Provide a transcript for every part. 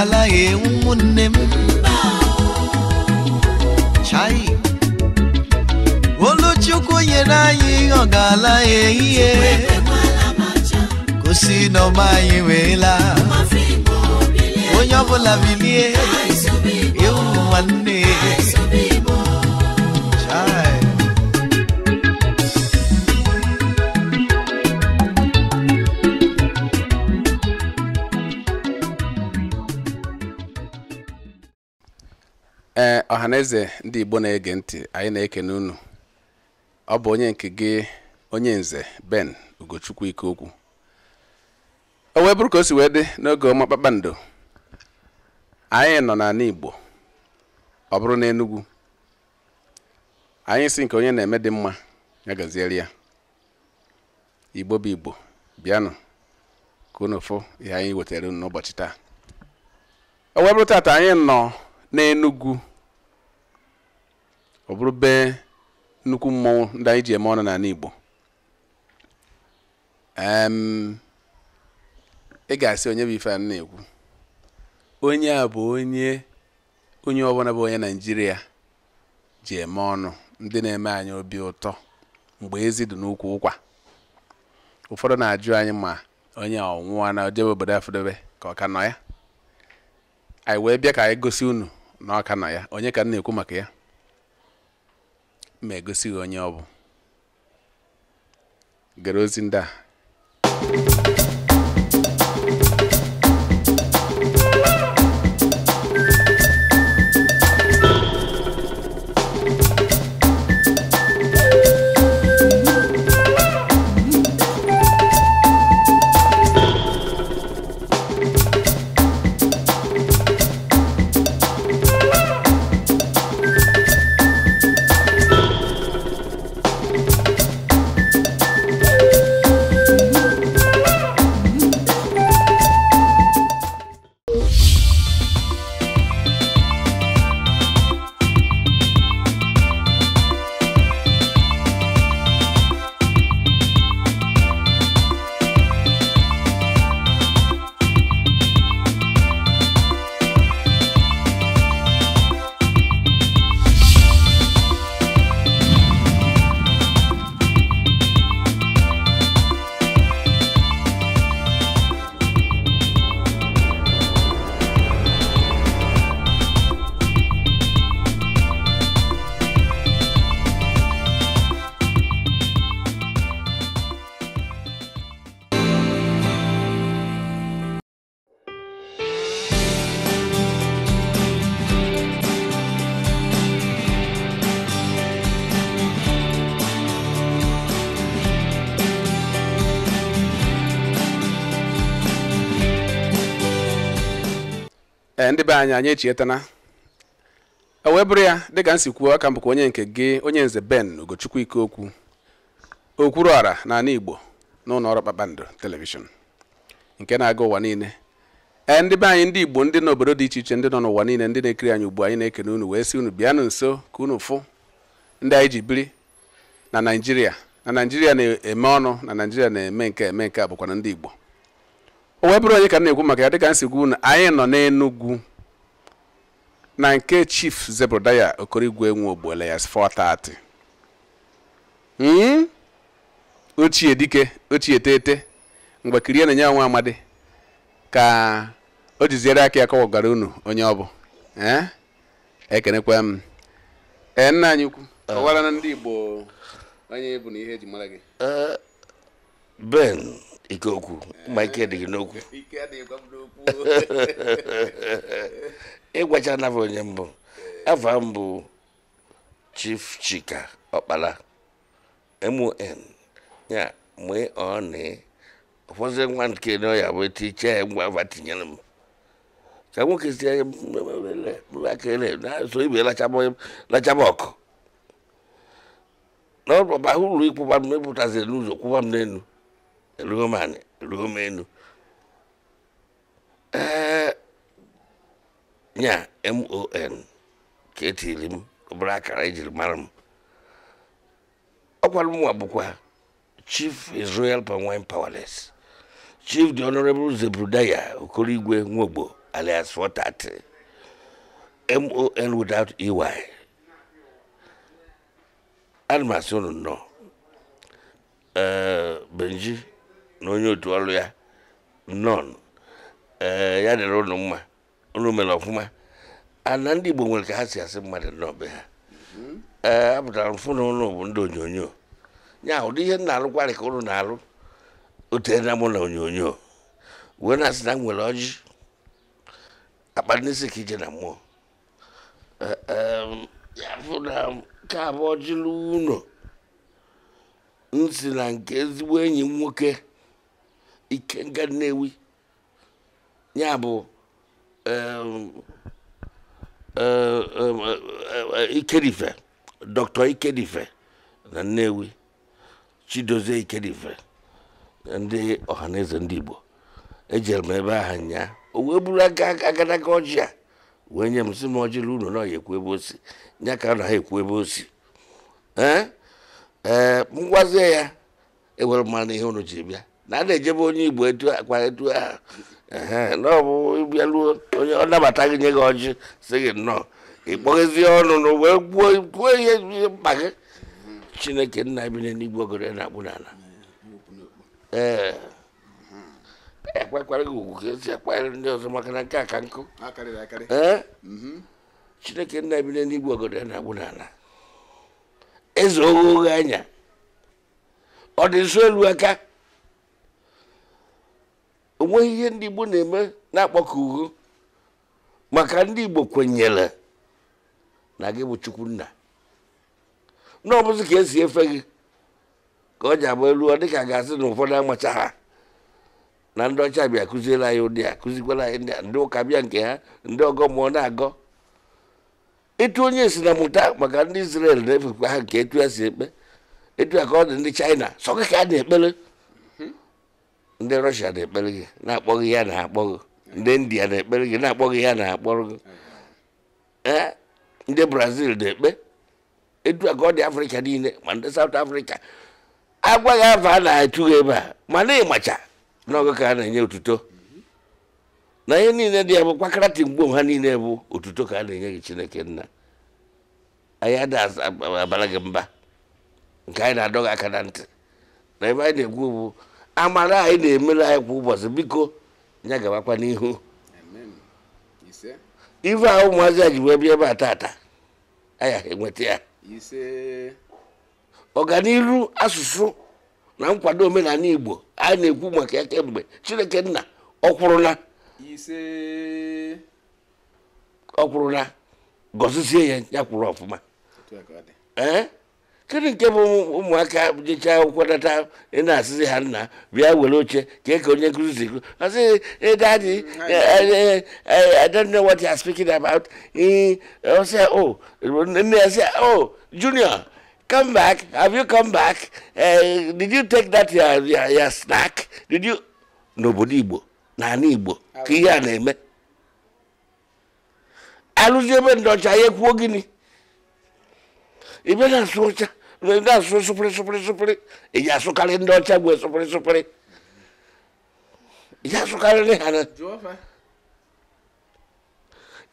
ala ewu nwanne m chai oluchukwu nyere anyị ihe ọ ga-ala ehihie gosi na ọma anyị wee laa onye ọbụla bilie ewu nwanne ọhaneze ndị igbo na-ege ntị anyị na-ekene unu ọ bụ onye nke gị onye nze ben ugochukwu ike okwu o wee bụrụ ka o si wee dị n'oge ọma kpakpando anyị nọ n'ala igbo ọ bụrụ na enugwu anyị si nke onye na-eme dị mma ya gaziere ya igbo bụ igbo bịanụ ka fụ ihe anyị wetara unu n'ụbọchị taa o wee taata anyị nọ n'enugwu ọ bụrụ bee nnukwu mmọnwụ ndị anyị ji eme ọnụ n'ala Igbo ị ga-asị onye bụ ife a na-ekwu onye a bụ onye onye ọbụla bụ onye naijiria ji eme ọnụ ndị na-eme anyị obi ụtọ mgbe ezi dị n'ukwu ụkwa ụfọdụ na-ajụ anyị ma onye ọnwụwa na ojebe obodo afụdobe ka ọ ka nọ ya anyị wee bịa ka anyị gosi unu na ọ ka nọ ya onye ka m na-ekwu maka ya ma egosi gị onye ọ bụ gara ozi ndị a ndị be anyị anyị echietana e bụrụ ya dịka m si kwuo aka m onye nke gị onye nze ben ike okwu okwuru ọra na ala Igbo n'ụlọ ụlọ ọrụ Kpakpando telivishọn nke na-aga ụwa niile ee ndị be anyị ndị Igbo ndị nọ n'obodo dị iche iche ndị nọ n'ụwa niile ndị na-ekiri anyị ugbu anyị na-ekene unu wee si unu bịanụ nso ka unu fụ ndị anyị ji biri na Naịjirịa na Naịjirịa na-eme ọnụ na Naịjirịa na-eme nke eme nke a bụkwa na ndị Igbo o wee bụrụ onye ka m na-ekwu maka ya dịka m si gwu unu anyị nọ n'Enugwu na nke chief zebrodaya okorigwe nwe ogbuele ya 430 ochie dike ochie tete mgbe kirie na-enye nwa amadi ka o jiziere aka ya kọwagara unu onye ọ bụ eh? ekenekwa m ee eh, nna anyị ukwu ọwara na ndị igbo onye bụ na ihe eji mara gị eh, ben ike okwu ma ike adịghị n'okwu ịgwachala m onye mbụ afa mbụ bụ Chief Chika ọkpala MON ya mgbe ọ na ụfọdụ nwa nke na ọya bụ tiche ya ngwa afa tinyere m ka nwoke si na-eso ibe lachaba ọkụ n'ọba ụlọ ịkwụba m mepụtaziri n'ụzọ kwụba m n'elu eruo m enu. ee nya mon ka etiri m akara ejiri mara m ọkwara mụnwa bụkwa chief israel pawine powerless chief the honorable zebrudaya okorigwe nwogbo alias 430 mon without ey ana m asị eh, benji na onye otu ọrụ ya nọn eh, ya dịrị unu mma unu mere ọfụma ana ndị Igbo nwere ka ha si asị mmadụ n'ọbe ha mhm. ee eh, apụtara mfụ na ụlọ bụ ndị onyonyo ya ụdị ihe na-alụkwarị ka ụlọ na-alụ otena mụ na onyonyo wee na-asị na nwere ọjị akpa n'isi ka ije na mmụọ eh, ya fụ na nke abụ nsi na nke ezigbo enyi nwoke Ikenga Nnewi ya bụ ikedife dr ikedife na nnewi chidozie ikedife ndị ọhaneze ndị igbo ejere m ebe ahụ nyaa o wee buru aka agadaga ọjị a wee nye m si m ọjịla unu na ọya ekwu ebe osi nya ka na ha ekwu ebe osi ee gwazie ya ewere mara ihe unu ji bịa na a na-ejebe onye igbo etu akwa etu ahụ na ọ bụ ịbịaruo onye ọ nabata gị nye gị ọjị si gị nnọọ ịkpọghezie ọnụ na wee kwuo ihe mkpa gị chineke nna bi n'igwe ogere na-akpụ n'ala ee ekwekwara gị ugwu ka esi akpagharị ndị ọzọ maka na nke a ka nkụ ee mhm. chineke nna bi n'igwe ogere na-akpụ n'ala eze oghe oghe anya ọ dị nso elu aka onweghị ihe ndị Igbo na-eme na-akpọkọ uhu maka ndị Igbo kwenyere na gị bụ Chukwunna na ọbụzi ka esi efe gị ka ọ ji agba elu ọ dịka ga-asị na ụfọdụ amacha ha na ndị ọcha bịa kụziere anyị ụdị a kụzikwara anyị ndị ụka bịa nke ha ndị ọgọ mụọ na-agọ ịtụ onye si na mụta maka ndị Israel na-efekwa ha nke etu ya si ekpe etu ya ka ọ dị ndị China sọ gị ka a na-ekpere ndị rọshia na-ekpere gị na-akpọghị ya na-akpọghị ndị india na-ekpere gị na-akpọghị ya na-akpọrọ gị ee ndị brazil na-ekpe edu ka ọ afrịka niile ma ndị saụt afrịka agwaghị afọ a na atụghị ebe a ma na ịmacha n'oge ka a na-enye otuto na ihe niile dị ya bụ kwakaratin mgbe ha niile bụ otuto ka a na-enye gị chineke nna anyị ada abara gị mba nke anyị na adọghị aka na ntị na ebe anyị na egwu bụ amara anyị na-emere anyị kwa ụbọchị biko ya gabakwa n'ihu ife a ụmụazị a ji wee bịa ebe a tata enweta ya ọganiru asụsụ na nkwado omenala igbo anyị na-ekwu maka ya kemgbe chineke nna ọkwụrụna ọkwụrụna gọzizie ya ya kwụrụ ọfụma kedu nke bụ ụmụaka jechaa akwụkwọ data ị na-asịzi ha nna bịa were oche kee ka onye nkụzi si asị daddy mm, eh, eh, eh, i don't know what you are speaking about ọsị o oh. nne ya sị o oh, junior come back have you come back uh, did you take that your, your, your snack did you n'obodo igbo n'ala igbo ka ihe a na-eme alụzi ebe ndị ọcha ya ekwuo gịnị ibere asụcha ndị asụ sụpịrị sụpịrị sụpịrị eji asụkarị ndị ọcha gwe sụpịrị sụpịrị eji asụkarịrị ha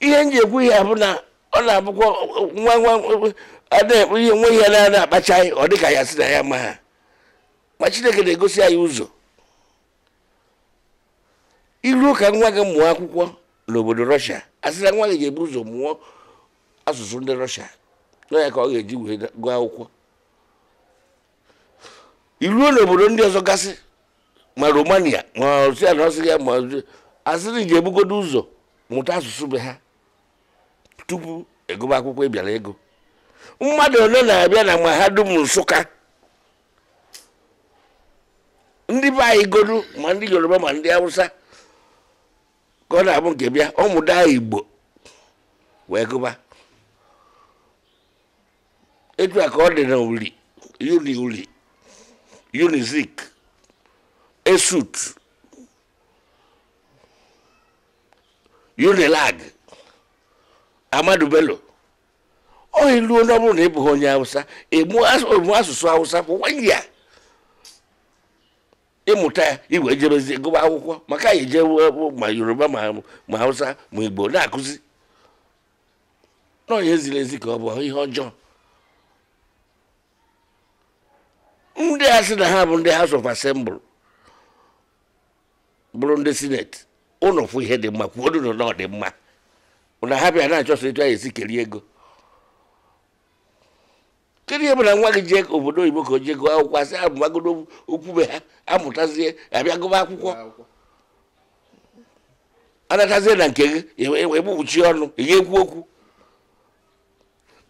ihe nji ekwu ihe bụ na ọ na-abụkwa nwa nwa adịghị ihe ihe na-ada akpacha anyị ọ dịka ya si na ya ma ha ma chineke na-egosi anyị ụzọ iruo ụka nwa gị mụọ akwụkwọ n'obodo rọshia a na nwa gị ga-ebu ụzọ mụọ asụsụ ndị na ka ọ ga-eji wee gụọ akwụkwọ iruo n'obodo ndị ọzọ gasị ma romania ma ọsia na ọsị ya ma asịrị ji ebugodo ụzọ mụta asụsụ be ha tupu egụba akwụkwọ ịbịara ego mmadụ ole na-abịa na mahadum nsụka ndị be anyị godu ma ndị yoruba ma ndị hausa ka ọ na-abụ nke bịa ọmụda igbo wee gụba etu ya ka ọ dị na uli uni uli esut unilag amadu bello ọ iluo onye ọ bụrụ na ị bụghị onye hausa ịmụ asụsụ hausa for ya ịmụta ya igwe jebezi gụba akwụkwọ maka anyị ejewe ma yoruba ma hausa ma igbo na-akụzi nọ onye ziri ezi ka ọ bụ ihe ọjọọ ndị a sị na ha bụ ndị house of assembly bụrụ ndị senate ụnụ fụ ihe dị mma kwuo ụnụ na ọ dị mma na ha bịa na-achọsọ etu anyị esi kerie ego kedu ihe bụ na nwa gị jee obodo oyibo ka o jee gụọ akwụkwọ asị okwu okwube ha amụtazie abịa gụba akwụkwọ anatazie na nke gị egbugbuchi ọnụ ihe ga-ekwu okwu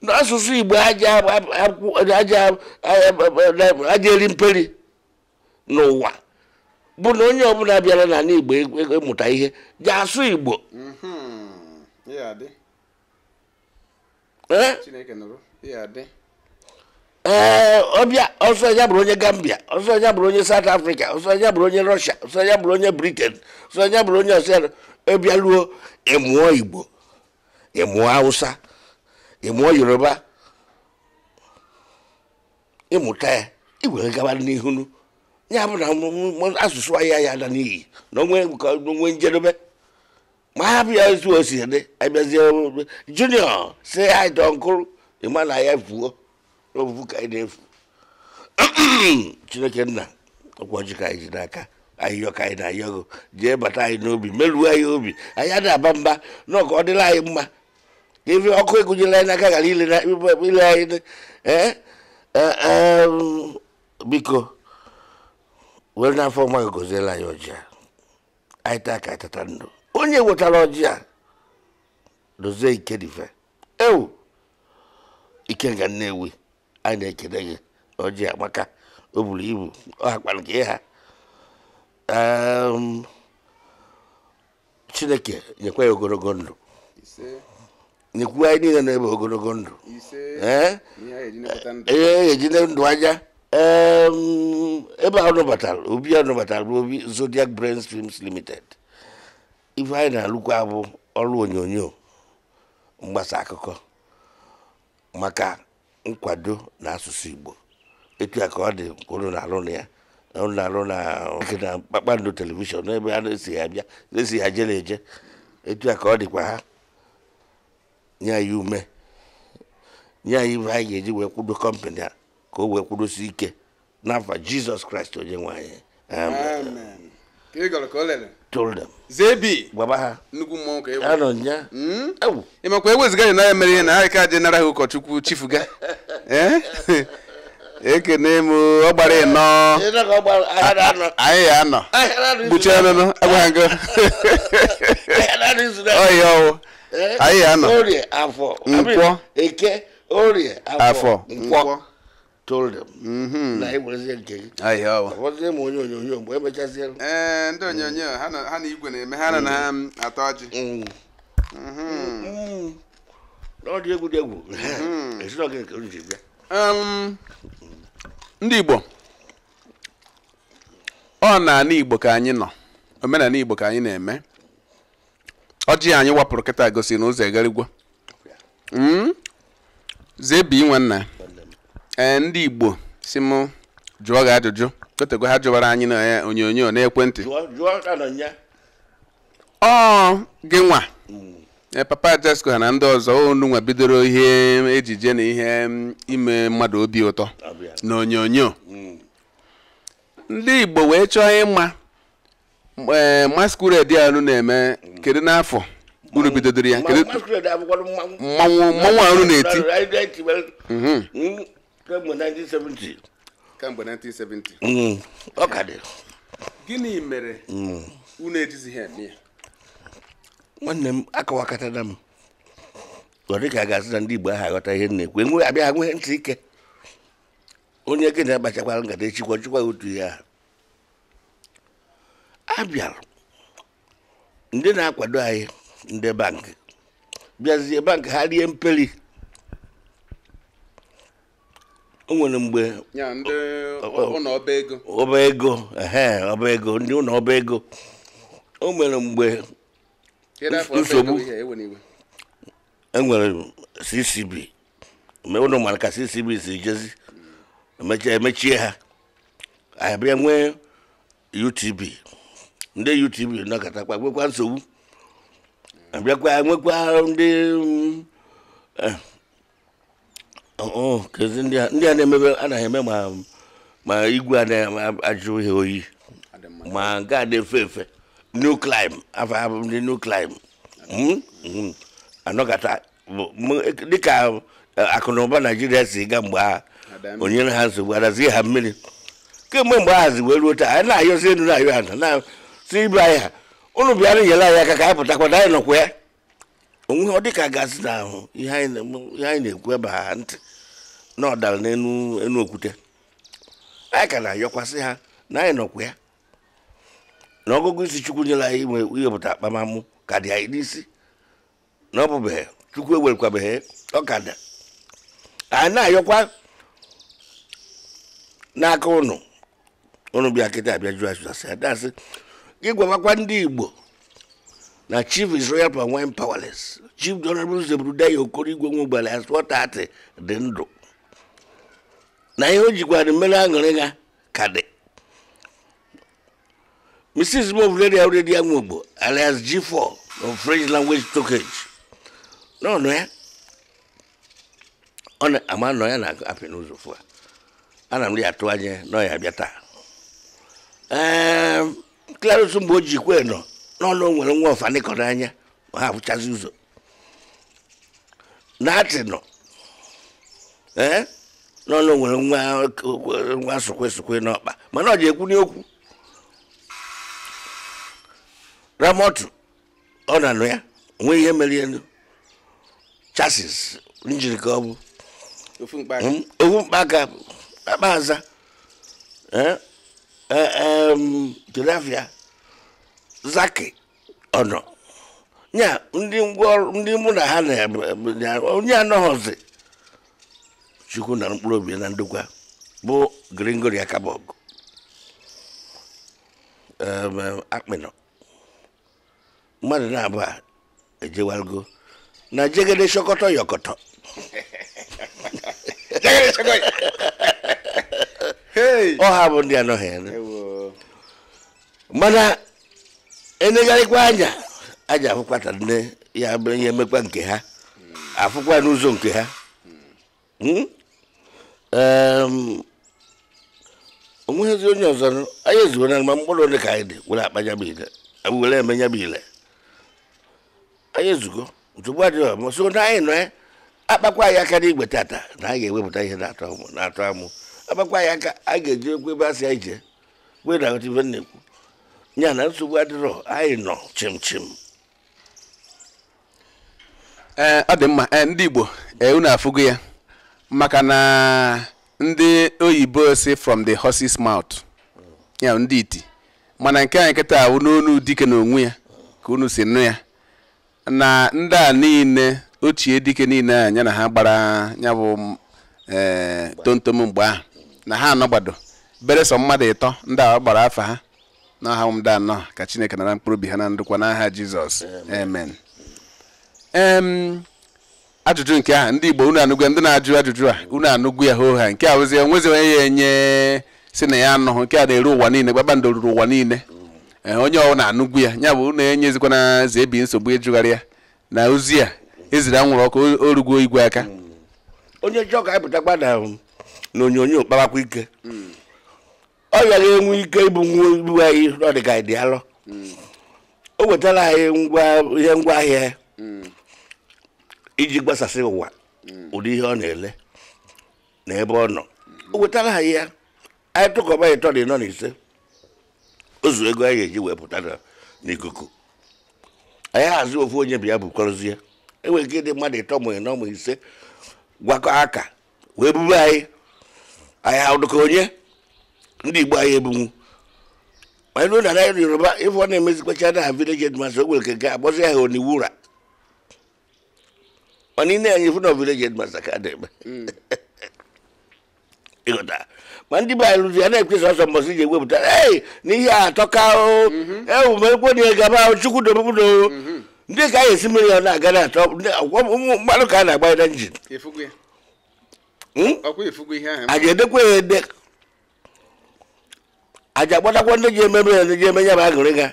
asụsụ igbo aja eri mperi n'ụwa bụ na onye ọbụla bịara n'ala igbo ịmụta e, e, ihe ga asụ igbo ee ọbịa ọsọ ya bụrụ onye gambia ọsọ ya bụrụ onye south africa ọsọ ya bụrụ onye russia ọsọ ya bụrụ onye britain ọsọ ya bụrụ onye ọsịa ọbịa e ịmụọ igbo ịmụọ hausa ịmụọ yoruba ịmụta ya igwere gaba n'ihunu ya bụ na asụsụ ahịa ya ada n'iyi na onwe njedebe ma ha bịa etu o si dị abịazie junior si ha ịdọ nkụrụ ịma na ya fuo n'ofufu ka anyị na-efu chineke nna ọkwa ọjị ka anyị ji n'aka ahịhịọ ka anyị na-ayọgo jee bata anyị n'obi merụọ anyị obi anyị adị aba mba na ọka ọ dịla anyị mma ka ebe ọkụ egụnyela anyị n'aka ghara ile anyị biko were n'afọ mma goziela anyị ọjị anyị taa ka tata ndụ onye wetara ọjị dozie ike ewu ike ga nnewi anyị na-ekele gị ọjị maka o buru ibu ọ hakpara gị ha um, chineke nyekwa ya ogologo ndụ n'ekwu anyị niile na-ebe ogologo ndụ ihe ejide ndụ ebe a obi a nụbatara bụ obi zodiac brain streams limited ife anyị na-alụkwa bụ ọrụ onyonyo mgbasa akụkọ maka nkwado na asụsụ igbo etu a ka ọ dị unu na-alụ na ya na-alụ na kpakpando telivishọn n'ebe a na-esi ya bịa na-esi ya jele eje etu a ka ọ dịkwa ha nye anyị ume nye anyị ihe anyị ga-eji wee kwudo kọmpanị a ka o wee kwudosi ike n'afa jizọs kraịst onye nwe anyị amen ịmakwa eweziga anyị n'anya mere ihe na ha ka adị nara ha ụkọchukwu chifu chifuga eh? ekene m ọ gbara ịnọ ah, anyị ya anọ gbuchie ọnụnụ agwaghị ngo ọhịa ọwụ Eh? o orie afo nkwo eke orie afọ nkwọ mm-hmm. na ịgbazie nke gị ọbọzie ee ndị onyonyo ha na igwe na-eme ha na atọ ọjị n'ọdị egwu dị egwu mm-hmm. nke um, ndị igbo ọ na ana igbo ka anyị nọ omenala igbo ka anyị na-eme ọjị anyị wapụrụ kịta gosi na ụzọ egarigwe hmm? zebi nwanna ee ndị igbo si m jụọ gị ajụjụ kotego ha jụwara anyị na e, onyonyo n'ekwentị ọ gị nwa mm. e, papa ha na ndị ọzọ onu nwa bidoro ihe ejije na ihe mm, ime mmadụ obi ụtọ na onyonyo mm. ndị igbo wee chọọ ịma ee eh, masquerade anụ na-eme kedu n'afọ unu bidodoro ya kedu mmanwụ mmanwụ anụ na-eti mhm. mm, kemgbe 1970 kemgbe 1970 mm, ọ ka dị gịnị mere mm. unu ejizighị eme ya nwanne m akọwakọtara m ọ dị ka a ga-asị na ndị Igbo ahụ aghọta ihe na-ekwu enwe abịa ha ntị ike onye gị na-akpachakwara nkata echikwa chikwa otu ihe ahụ a bịara ndị na-akwado anyị ndị bankị bịazie bankị ha rie mperi o nwere mgbe ọba ego ọba ego ndị ụlọ ọba ego o nwere mgbe nsogbu enwere e ccb ụlọ mara ka ccb si jezi emechie ha abịa nwee utb ndị YouTube nọkatakwa nwekwa nsogbu abịakwa nwekwa ndị eh, oh, oh, kezi ndị a na-emebe anaghị eme ma igwe a na-ajụ ihe oyi ma nke a na-efe efe new climb afọ abụ ndị new climb hmm? Hmm. anọkata e, dịka eh, akụ na ụba naijiria si ga mgbe ha o nyere ha nsogbu adazie ha mmiri kemgbe mgbe ahazi wee ruo taa anyị na-ayọzi elu na-ayọ ha na si ibe anyị ha ụnụ bịara nyere anyị aka ka anyị pụtakwana anyị nọkwa ya ọ dị ka gazi na ihe anyị na-ekwu ebe ha ntị na ọ n'elu okwute anyị ka na-ayọkwasị ha na anyị nọkwa ya na ọgụgụ isi chukwu nyere anyị inwe iwepụta ka dị anyị na ọ be chukwu ka da anyị na-ayọkwa n'aka ụnụ ụnụ bịa kịta abịa jụ ajụjụ asị ịgwawakwa ndị igbo na chief is royal and powerless chief honorable zebrudaya okoro igwe nwe ugbala as wọtat dị ndụ na ihe o jikwara mmeri aṅụrị ha ka dị mrs movleria redia nwogbo alias g4 of french language stockage n'ọnụ ya ọ na-ama nọ ya na-apị n'ụzọ fụ a ana m ya atụ anya na ọ ya bịa taa ehm, Clarence mgbe o ji kwe nọ n'ọnụ nwere nwa ọfani n'anya anya ma ha ụzọ na nọ nọ n'ọnụ nwere nwa sokwe sokwe n'ọkpa mana ọ ji ekwu n'okwu ramotu ọ na-anụ ya onwe ihe mere elu chasis njirika ọ bụ ofu mkpaka akpa aza tilapia zaki ọnọ ya ndị ngwaọrụ ndị mụ na ha onye anọghọzi chukwu na mkpụrụ obi na ndokwa bụ gringori akabog akpịnọ mmadụ na-abụọ ejewalgo na jegede shọkọtọ yọkọtọ ọ ha bụ ndị anọghị mana enegharịkwa anya aja afụkwata nne ya bụ emekwa nke ha Afukwa n'ụzọ nke ha hmm? onweghịzi onye ọzọ anyị ezuo na mgba mkpụrụ ole ka anyị dị were akpa ya bụ ile were eme ya bụ ile anyị ezugo nsogbu adịghị ọma so na anyị nọ eh, akpakwa anyị aka n'igwe tata na anyị ga-ewepụta ihe na-atọ amụ agbakwa ya aka a ga-eji okwu ebe a si ije wedata ibe na-ekwu ya na nsogbu adịrọ anyị nọ chim chim ee ọ dị mma ndị igbo unu afụgo ya maka na ndị oyibo si from the horse's mouth ya ndị iti mana nke anyị nkịta ahụ n'onu dike na onwe ya ka unu si nụ ya na ndị a niile ochie dike niile a ya na ha gbara ya bụ ee tomtom mgbe ahụ na ha anọgbado bere sọ mmadụ ịtọ ndị a gbara afọ ha na aha ụmụda anọ ka chineke nara mkpụrụ obi ha na ndụkwa n'aha jizọs amen ajụjụ nke aha ndị igbo unu anụgwe ndị na-ajụ ajụjụ a unu anụgwu ya hoo ha nke a ozi onwezi onye ya enye si na ya anụhụ nke a na-eru ụwa niile kpakpando ruru ụwa niile eh, onye ọwụ na-anụgwu ya ya bụ unu enyezikwana na zebi nsogbu ịjụgharị ya na ozi a eziri anwụrụ ọkụ orugwo igwe aka hmm. onye jọọ ga anyị na na onyonyo ike ọ bịara enwe ike ịbụ nwa anyị ọdịga dị alọ o wetara anyị ihe ngwa ahịa iji gbasasị ụwa ụdị ihe ọ na-ele na ebe ọ nọ o wetara anyị ya anyị tụkọba ịtọ dị nọ n'ise ise ozu ego anyị ga-eji wee pụta n'ikuku anyị hazi ofu onye bụ ya bụ kọrọzie enwere ike ịdị mmadụ ịtọ mụ ịnọ ma ise gwakọ aka wee buru anyị anyị ha onye ndị igbo anyị egbunwu anyị ruo na naira yoruba ịfụ ọ na-emezikwacha na ha village headmaster ogwere ka ga agbazi ya ha oniwu ụra mana ine anyị fụ na village headmaster ka na-eme ịghọta ma ndị be anyị rụzi a na-ekwesị ọsọ mbọsị ji ewepụta ee n'ihe atọka o mm-hmm. ewumekwe na egaba o chukwu dobudo mm-hmm. ndị ka anyị esi mmiri ọ na-aga na atọ ụmụ mmadụ ka a na-agba ya na njin Hmm? a ga-edekwa a ga ndị ji emebe ya ndị ji eme ya bụ agịrịga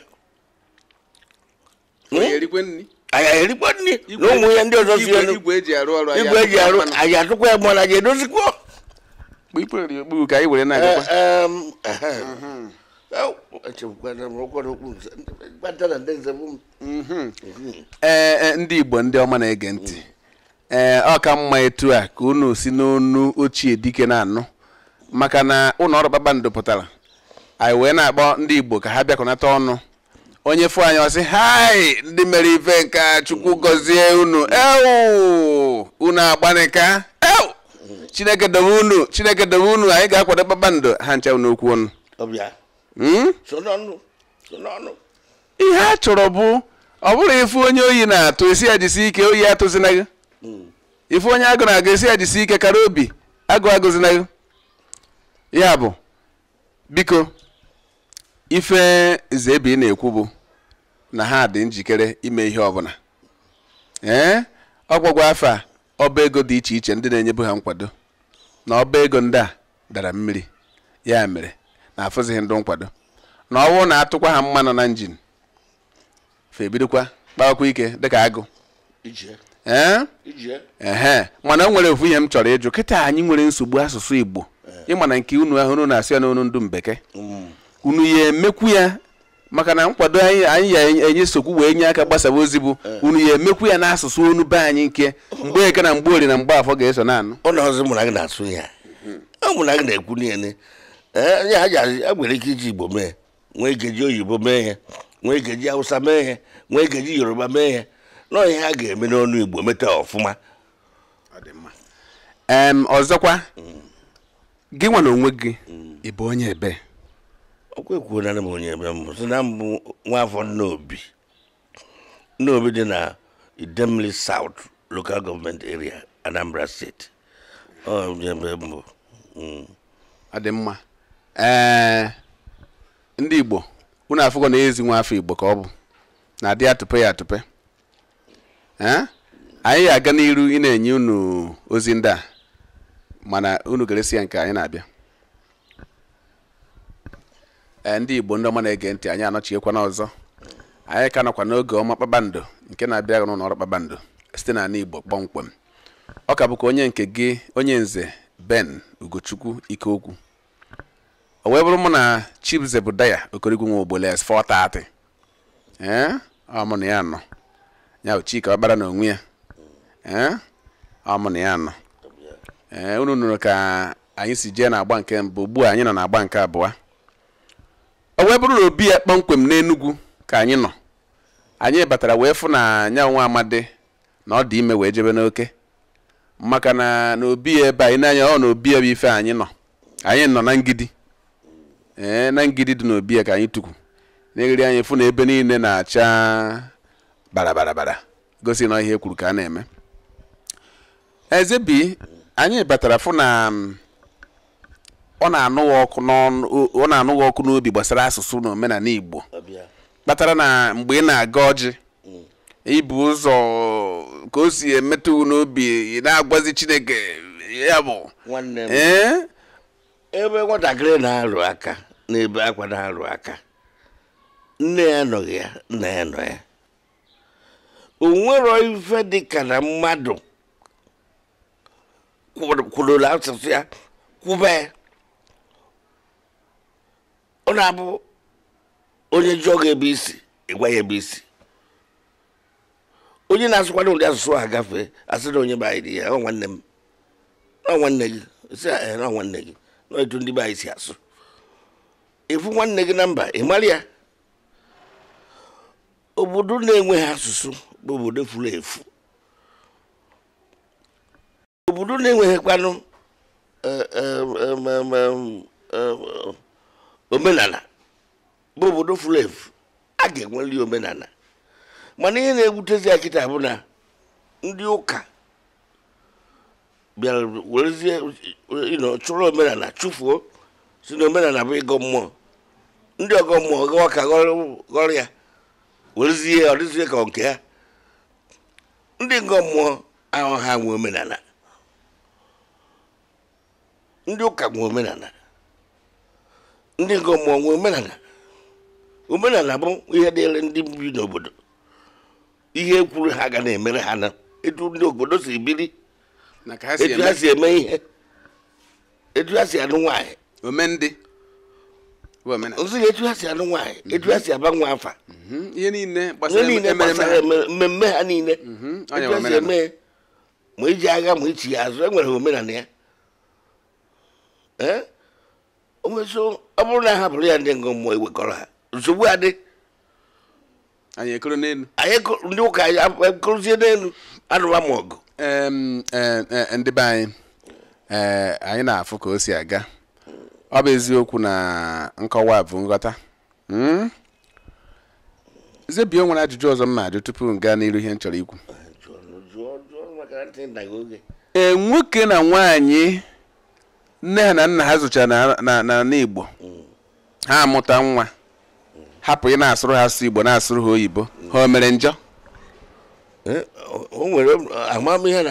hmm? anyị erikwa nri na ụmụ ya ndị ọzọ si elu igwe eji e arụ e anyị atụkwa ya mgbe na ga edozikwa ee ndị igbo ndị ọma na-ege ntị ee eh, ọ ka mma etu a ka unu si n'onu ochie dike na-anụ maka na ụlọ ọrụ kpakpando pụtara anyị wee na-akpọ ndị igbo ka ha bịakọnata ọnụ onye fụ anyị ọsị hai ndị mere ife nka chukwu gọzie unu ewu unu agbanika ewu chineke dobe unu chineke dobe unu anyị ga-akwado kpakpando ha ncha okwu ọnụ hmm? ihe a chọrọ bụ ọ bụrụ ifu onye oyi na-atụ esi ya jisi ike oyi atụzina gị ife onye agụ na-agụ esi ya jisi ike kara obi agụ na ya bụ biko ife zebi na-ekwu bụ na ha dị njikere ime ihe ọbụla ee ọgwụgwọ afọ a ọba ego dị iche iche ndị na-enyebu ha nkwado na ọba ego ndị a dara mmiri ya mere na afụzighị ndụ nkwado na ọwụ na-atụkwa ha mmanụ na njin fa ebidokwa ike dịka agụ Eh? mana o nwere ofu ihe m chọrọ ịjụ kịta anyị nwere nsogbu asụsụ Igbo eh. ịma na nke unu ahụ na-asị ya n'onu ndụ mbeke mm. unu ya emekwu ya maka na nkwado anyị anyị ya enye nsogbu wee nye aka gbasaba ozi bụ eh. unu ya emekwu ya n'asụsụ onu be anyị nke mgbe eke na mgbe ori na mgbe afọ ga-eso na anụ onye ha ji a nwere ike iji Igbo mee nwee ike oyibo mee ihe nwee ike ji Hausa mee ihe nwee ike ji Yoruba mee ihe nọ ihe a ga-eme n'ọnụ igbo meta ọfụma ọzọkwa mm. gị nwa onwe gị mm. ịbụ onye ebe okwe kwuo na m onye ebe mbụ si na mbụ nwaafọ nnaobi nnaobi dị na Idemli south local government area anambra steeti onye ebe mbụ mm. ọ dị mma ndị igbo unu afụgo na ezi nwa afọ igbo ka ọ bụ na adị atụpe ya atụpe anyị ga-aga n'iru ị na-enye unu ozi ndị a mana unu ga ya nke anyị na-abịa ndị igbo ndị ọma na-ege ntị anyị anọchiekwana ọzọ anyị ka nọkwa n'oge ọma kpakpando nke na-abịa n'ụlọ ọrụ kpakpando site n'ala igbo kpọmkwem ọ ka bụkwa onye nke gị onye nze ben ugochukwu ikeokwu o wee bụrụ mụ na chibzebudaya okorigwe nwe ogbole s 430 ee ọ mụ na ya nọ ya bụ Chike ọkpara na onwe ya eh? ọ na ya nọ ee eh, unu nụrụ ka anyị si jee na-agba nke mbụ ugbu anyị nọ na-agba nke abụọ o wee bụrụ na obi ya kpọmkwem n'Enugu ka anyị nọ anyị batara wee fụ na anya nwa amadi na ọ dị ime wee jebe n'oke maka na n'obi ebe anyị n'anya ọ na obi bụ ife anyị nọ anyị nọ na ngidi ee eh, na ngidi dị n'obi ya ka anyị tukwu n'egiri anyị fụ na ebe niile na-acha bara bara bara gosi na ihe kwuru ka a na-eme eze bi anyị batara fụ na mm, ọ na-anụghị ọkụ n'obi gbasara asụsụ na Igbo kpatara na mgbe ị na-aga ọjị mm. ibu ụzọ ka o si emetụ n'obi ị na-agwazi Chineke ya bụ ebe nwatakịrị na-arụ aka n'ebe akwa na-arụ aka nne ya nọghị ya nna ya nọ ya onwero ife ka na mmadụ kwurụrụ asụsụ ya kwube ọ na-abụ onye jụọ gị ebe isi ịgwa ya ebe isi onye na-asụkwado ụdị asụsụ a agafe asị na onye banyere ya ọ nwanne m na nwanne gị si na nwanne gị na etu ndị be anyị si asụ ịfụ nwanne gị na mba ị ya obodo na-enweghị asụsụ obodo furu efu obodo na-enweghịkwanụ e, e, e, omenala bụ obodo furu efu a ga-enweli omenala mana ihe na-ewutezi akịta bụ na ndị ụka bịara werezie chụrụ omenala chụfuo si na omenala bụ ịgọ mmụọ ndị ọgọ mmụọ gawa ka ghọrọ ya werezie ọ dịzie ka nke ya ndị ngọ mmụọ ahụ ha nwe omenala ndị ụka nwe omenala ndị ngọ mmụọ nwe omenala omenala bụ ihe dịịrị ndị bi n'obodo ihe ekwuru ha ga na-emere ha na etu ndị obodo si biri etu ha si eme ihe etu ha si anụ nwaanyị omendị ozi etu ha si anụ nwaanyị etu ha si aba nwa afa ihe niile gbasara mmemme ha niile mm-hmm. etu ha si eme ma eji agha ma ichi ya azụ enwere omenala ya onweso ọ bụrụ na ha ya ndị ngụ mmụọ ewekọrọ ha nsogbu adị anyị ekoro ndị ụka ekorozie n'elu anụwa ma ọgụ ndị be anyị anyị na-afụ ka o si aga ọ bụ eziokwu na nkọwa bụ nghọta hmm? zebie nwere ajụjụ ọzọ m na tupu m gaa n'iru ihe m chọrọ ikwu ee nwoke na nwaanyị nne ha na nna ha zụchara na igbo ha amụta nwa hapụ ị na-asụrụ ha asụ igbo na-asụrụ ha oyibo ha o mere njọ e, o nwere amamihe na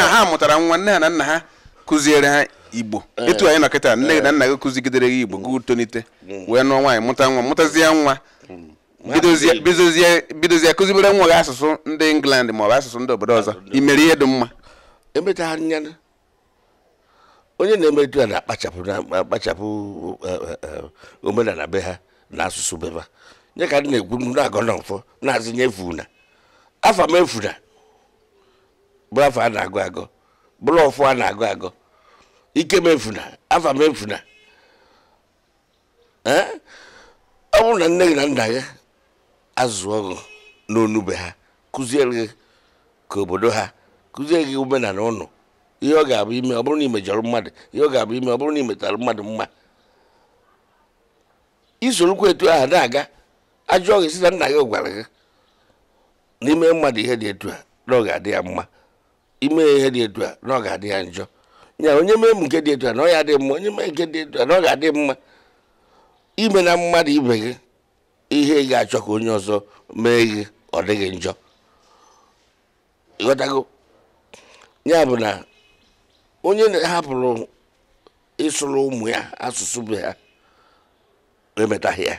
ha ha mụtara nwa nne ha na nna ha kụziere ha igbo eh. etu anyị nọkịta nne na nna gị kụzigidere gị igbo mm. gị tonite mm. wee nụọ nwaanyị mụta nwa mụtazie nwa mm. bidozie kụzibere nwa gị asụsụ ndị england ma ọ bụ asụsụ ndị obodo ọzọ imere ihe dị mma onye na-emetu a na-akpachapụ na-akpachapụ e, e, e, omenala be ha na asụsụ be ha nye ka ndị na-egwu na-agọ na mfọ na-azụnye efuna afọ m efuna bụ afọ a na-agụ agọ bụrụ ọfụ a na-agụ agụ ike mefuna afa mefuna ọ bụrụ na nne gị na nna gị azụọ gị n'onube ha kụziere gị ka obodo ha kụziere gị omenala ụnụ ihe ọ ga-abụ ime ọ bụrụ na imejọrọ mmadụ ihe ọ ga-abụ ime ọ bụrụ na imetara mmadụ mma isorokwa etu ahụ na-aga ajụọ gị si na nna gị gwara gị n'ime mmadụ ihe dị etu a na ọ ga-adị ya mma ime ihe dị etu a na ọ ga-adị ya njọ nya onye mee m nke dị etu a na ọ ya dị mma onye mee nke dị etu a na ọ ga-adị mma ime na mmadụ ibe gị ihe ị ga-achọ ka onye ọzọ mee gị ọ dịghị njọ ịghọtago ya bụ na onye na hapụrụ ịsụrụ ụmụ ya asụsụ be ha emetaghị ya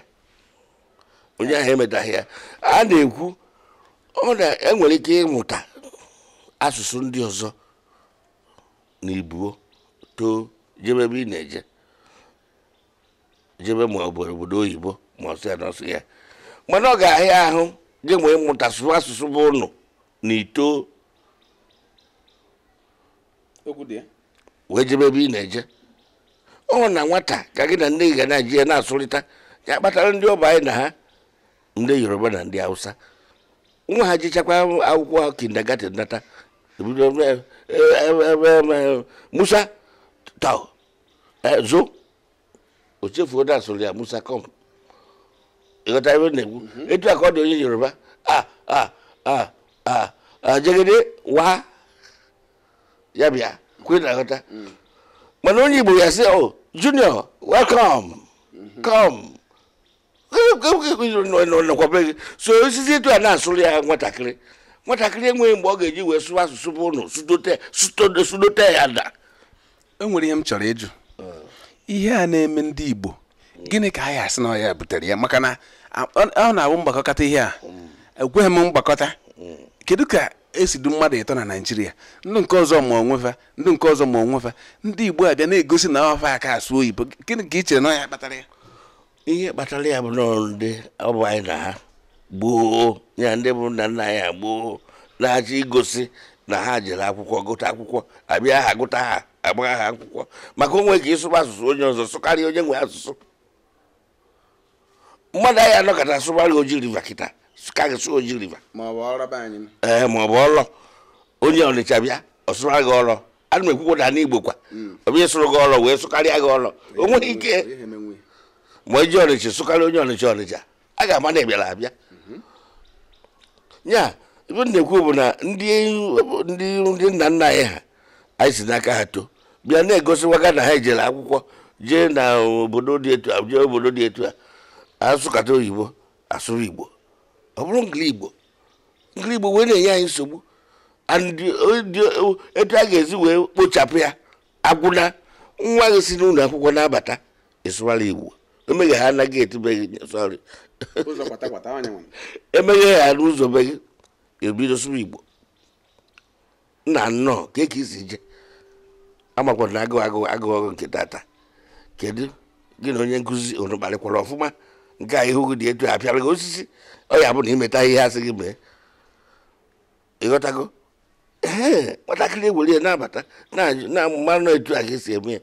onye ahụ emetaghị ya a na-ekwu ọ na-enwere ike ịmụta asụsụ ndị ọzọ na ibuo too jebe ebe ị na-eje jebe ma obodo obodo oyibo ma ọsọ ya ya mana ọ ga-ahịa ahụ gị nwee mụta asụsụ bụ ụnụ na ito wee jebe ebe ị na-eje ọ na nwata ka gị na nne gị ga na-eji ya na-asụrịta ya kpatara ndị ọba anyị na ha ndị yoruba na ndị hausa nwa ha jechakwa akwụkwọ kindergarten data Musa, tau. Eh, zo. Oche foda solia Musa come. Ìgbàta ìwé nìkú. Ètò àkọ́dé oyin Yorùbá. Ah ah ah ah ah jẹ́gẹ́dẹ́ wá yàbíà kúrò nàkọ́tà. Mọ̀nà oyin Ìgbò yà sí oh Junior welcome come. Kí kí kí kí nọ̀kọ̀ bẹ́ẹ̀ so sisi ètò àná àsọ̀rọ̀ yà wọ́n takiri. nwatakịrị enweghị mgbe ọ ga-eji wee sụwa asụsụ bụ ụnụ sudote ya da enwere ihe m chọrọ ịjụ ihe a na-eme ndị Igbo gịnị ka anyị asị na ọ butere ya maka na ọ na-abụ mgbakọta ihe a ekweghị m mgbakọta kedu ka esi du mmadụ ịtọ na Naịjirịa ndị nke ọzọ ma onwefa ndị nke ọzọ ma onwefa ndị Igbo abịa na-egosi na ọfa aka asụ oyibo gịnị ka ị chere na ọya kpatara ya ihe kpatara ya bụ n'ọrụ ndị ọ bụ anyị na ha gboo ya ndị bụ nna nna ya gboo na-achọ igosi na ha jere akwụkwọ gụta akwụkwọ abịa ha gụta ha agbagha ha akwụkwọ maka onwe ka ịsụba asụsụ onye ọzọ sụkarị onye nwe asụsụ mmadụ anyị anọkọta sụbarị oji riva kịta sụkarị sụ oji riva ee eh, ma ọ bụ ọlọ onye ọnịcha bịa ọsụra gị ọlọ ana m ekwukwụda n'igbo kwa hmm. ọbịa ịsụrụ gị ọlọ wee sụkarịa gị ọlọ o nweghị ike ma eji ọnịcha sụkarị onye ọnịcha ọnịcha a ga-ama na ị bịara abịa ya ibe na-ekwu bụ na ndị nna nna anyị ha anyị si n'aka ha too bịa na-egosiwaga na ha ejere akwụkwọ jee na obodo dị etu a jee obodo dị etu a asụkata oyibo asụrụ igbo ọ bụrụ ngili igbo igbo wee na-enye anyị nsogbu etu a ga ezi wee kpochapụ ya agwụna nwa gị si n'ụlọ akwụkwọ na-abata ịsụwara igbo emeghe ha anaghị etibeghị sọrị emeghe ha n'ụzọ be gị ebido sụrụ igbo nna nnọọ ka eke isi je amakwa na agụ agụ nke tata kedu gị na onye nkụzi unu kparịkwara ọfụma nke a ihu gị dị etu apịara gị osisi ọ ya bụ na imeta ihe asị gị mee ịghọtago ee nwatakịrị ewere ya na-abata na-amụmanụ etu a ga-esi eme ya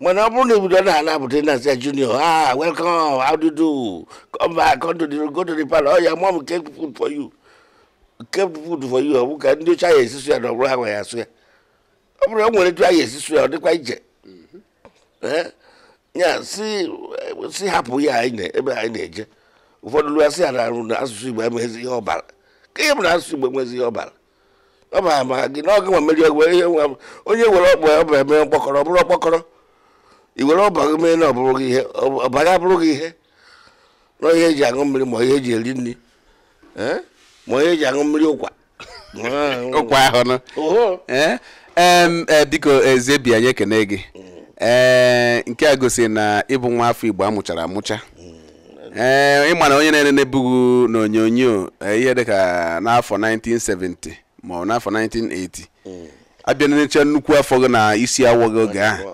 mana ọ bụrụ na obodo na-ala abụta na junior ah welcome how do you do come back come to the go to the palace oh your mom kept food for you kept food for you ọ bụ ka ndị oche anya esisu ya na ọ bụrụ ha nwe ya asụ ya ọ bụrụ e nwere etu anya esisu ya ọ dịkwa ije ya si hapụ ya ebe anyị na-eje ụfọdụ lụa sị ya arụ na asụsụ igbo enweghịzi ihe ọbara ka ihe bụ na asụsụ igbo enweghịzi ihe ọbara ọ ma ama gị na ọgụ nwa mmeri onye nwere ọkpọ ya ọ bụ eme mkpọkọrọ ọ bụrụ ọkpọkọrọ i were ọbara mee na gị ihe ọbara abụrụ gị ihe na ihe eji aṅụ mmiri ma ihe eji eri nri ma ihe eji aṅụ mmiri ụkwa ụkwa ahụ nọ ee e, biko ezebi anyị ekene gị ee nke a gosi na ịbụ nwa afọ igbo amụchara amụcha mm. ee ịma na onye na-ere na-ebughị n'onyonyo e, ihe dịka n'afọ 1970 ma ọ n'afọ 1980 abịa necha nnukwu afọ gị na isi awọ gị oge ahụ